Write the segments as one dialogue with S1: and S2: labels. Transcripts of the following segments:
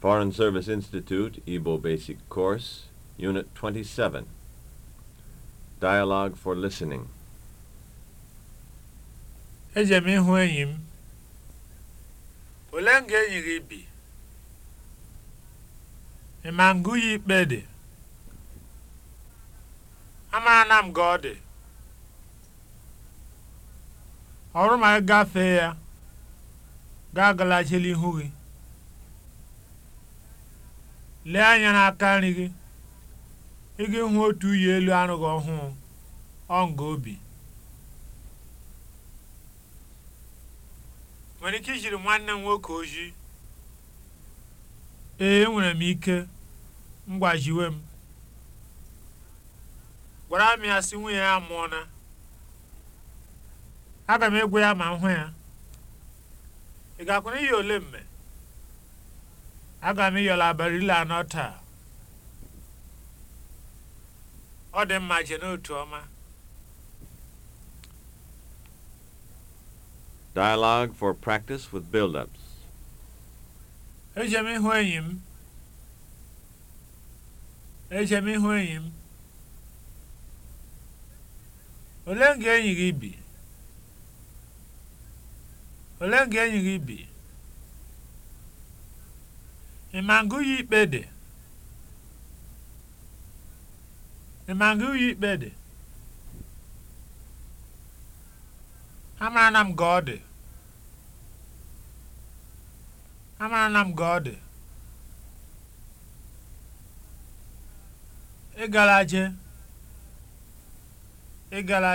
S1: Foreign Service Institute Igbo Basic Course, Unit 27. Dialogue for Listening. Eje m ịhụ enyi m. nga enyi gị bi? Ị ma ngụ ya ikpe dị? Amaara m ka ọ dị. Ọrụ ma gafee ya, ga agalachila ihu gị. lee anya n'aka nri gị ị ga hụ otu uyi elu arụghị ọhụụ ọ nga obi nwere ike ijiri nwanne m nwoke ojii ee nwere m ike mgbajiwe m gwara m ya si nwunye ya mụọna aga m egwu ya ma m hụ ya ị ga-akwụna ihe ole mme aga m ịyọrọ abalị ile anọ taa ọ dị mma je n'otu ọma Dialogue for practice with build-ups. Eje m ịhụ enyi m. Eje m ịhụ gị bi? enyi gị bi? Ị ma ya ikpe dị? ya Amara m ka ọ dị. Amara m ka ọ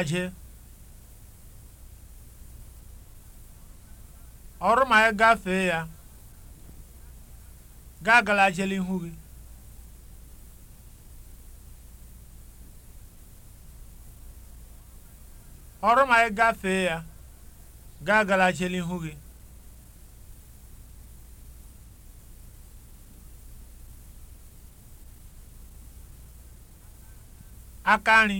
S1: dị. Ọrụ ma ị gafee ya. gị agala jele ihu gị ọrụ ma ị gafee ya gị agala jele ihu gị aka nri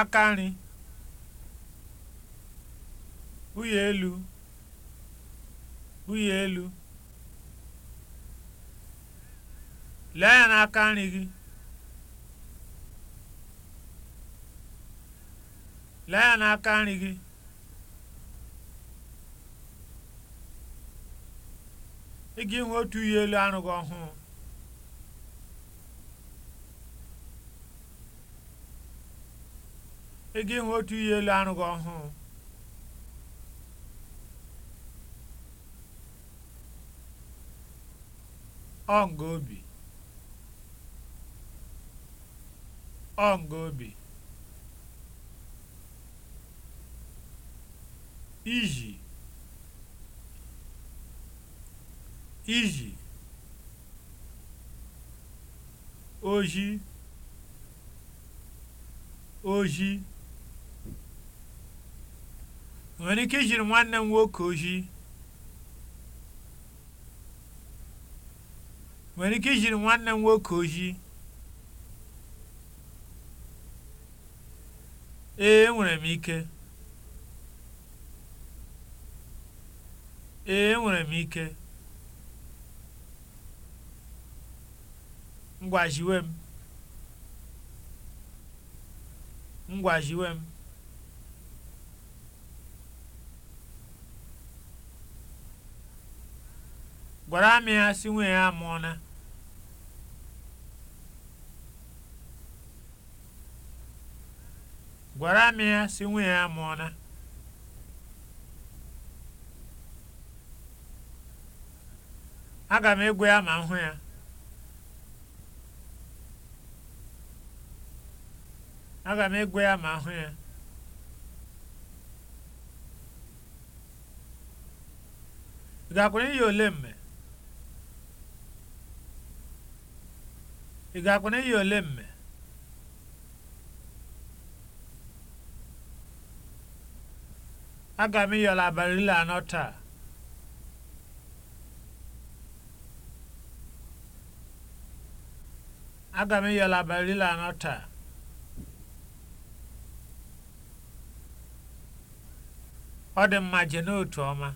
S1: aka nri ụyọ elu bulie elu lee ya n'aka nri gị lee ya n'aka nri gị ị ga-enwe otu uyi elu anụ gị ọhụụ ị ga-enwe otu uyi elu anụ gị ọhụụ ọ̀ngòbì ọ̀ngòbì iji iji oji oji nwere ike ijiri nwanne m nwoke ozi nwere ike ijiri nwanne m nwoke ojii ee nwere m ike ee enwere m ike ngwa m m gwara amị ya si nwunye ya amụọna gwara amị ya si nwunye ya amụọna aga m egwe ya ma m hụ ya aga m egwe ya ma m hụ ya ị gakwara iyi ole mme ị ga-akwụna ihe ole mme aga m ịyọla abalị ile anọ taa aga m ịyọla abalị ile anọ taa ọ dị mma je n'otu ọma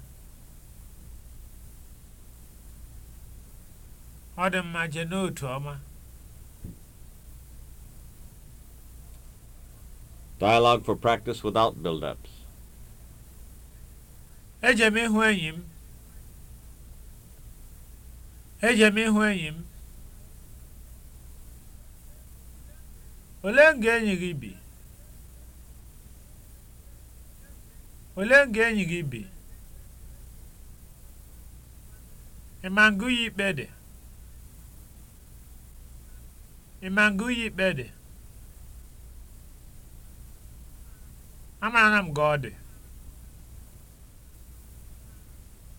S1: ọ dị mma je n'otu ọma Dialogue for practice without build-ups. Eje ịhụ enyi m. Olee nga gị bi? nga enyi Ị ma ngụ ya ikpe dị? Amaara m ka ọ dị.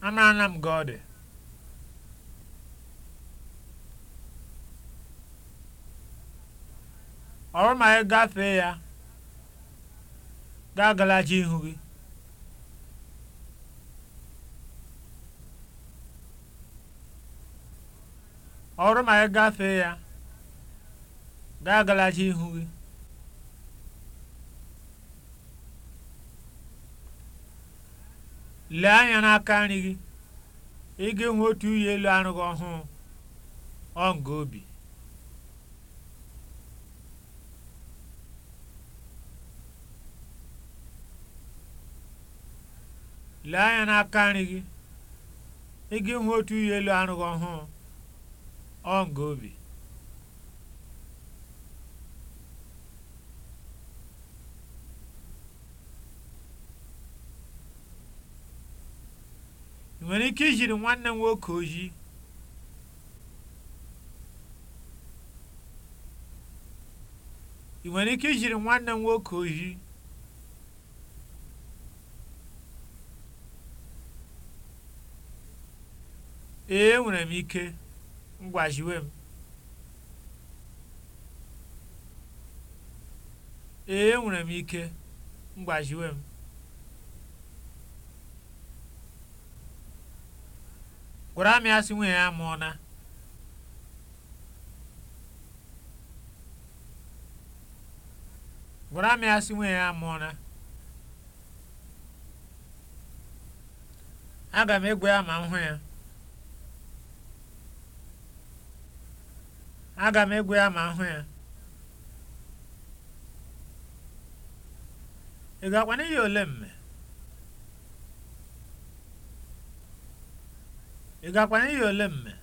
S1: Amaara m ka ọ dị. Ọ ma ị gafee ya, gaa ihu ma ị gafee ya, gaa galaji ihu gị. lee anya n'aka nri gị ị ga otu uyi elu arụ gị ọhụụ ọ elu arụ gị obi nwere ike ijiri nwanne nwoke ị nwere ike ijiri nwanne nwoke oji ee enwere m ike mgbajiwe m gwara amị asị nwunye ya amụọna gwara ya amụọna aga m egwu ya ma m hụ ya aga m ị ga-akwa n'ihi ole mme ị gakwanye ya ole mme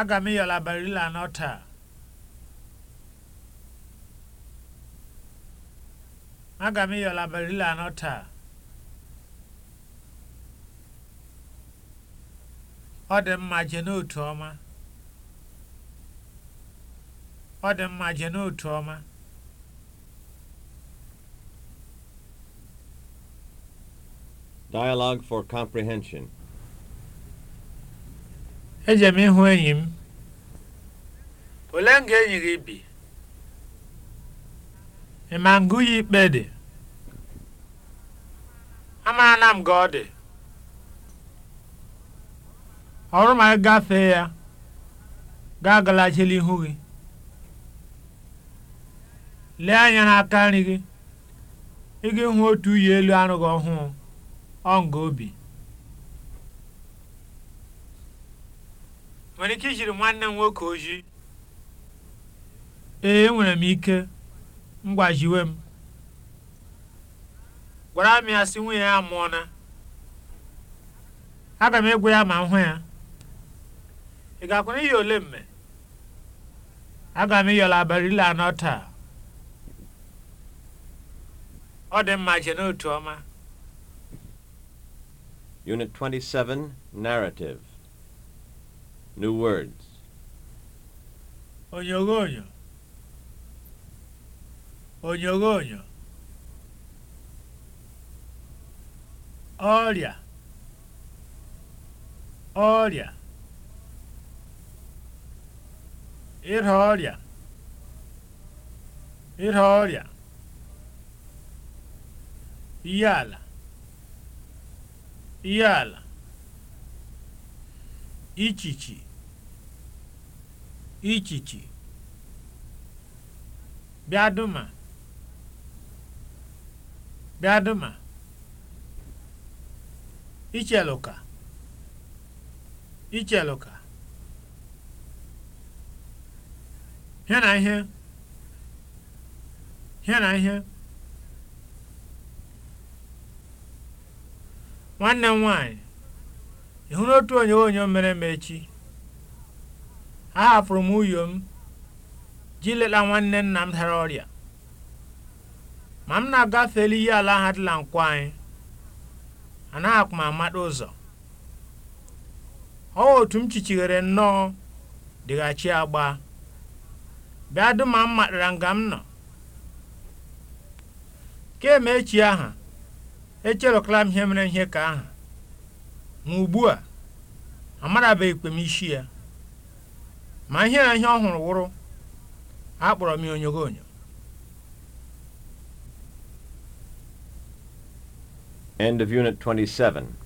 S1: aga m ịyọla barila anọ taa anọ taa ọ dị mma je n'otu n'otu ọma Dialog for Comprehension. Eje m ịhụ enyi m. Olee nga enyi gị bi? Ị ma ngụ ya ikpe dị? Amaara m gị ọ dị. Ọrụ ma gafee ya, ga agalachila ihu gị. Lee anya n'aka nri gị, ị ga otu uyi elu arụghị ọhụụ. obi. nwere ike ijiri nwanne m nwoke ojii ee enwere m ike ngwajiwe m gwara m ya si nwunye ya mụọna aga m egwu ya ma m hụ ya ị ga-akwụ n'ihi ole mme aga m ịyọla abalị ile anọ taa ọ dị mma je n'otu ọma Unit 27, Narrative. New words. Oñogoño. Oñogoño. Ọrịa. Ọrịa. Ịrịa ọrịa. Ịrịa ọrịa. Ihe ihe ala ichichi ichichi bịaduma bịaduma icheluka icheluka hịa na ihe hịa na ihe nwanne m nwanyị ị hụrụ otu mere m echi ahapụrụ m uyo m ji leta nwanne nna m dara ọrịa ma m na-agafeli ihe ala ha dịla nkwa anyị anaghị m amata ụzọ ọ otu m chichighere nnọọ dịghachi agba bịa dum ma m matara nga m nọ kem echi aha echerọkala m ihe mere ihe ka ahụ ma ugbu a amarabeghịkwa m isi ya ma ihe na ihe ọ hụrụ wụrụ akpọrọ m onyogo onyo. End of Unit 27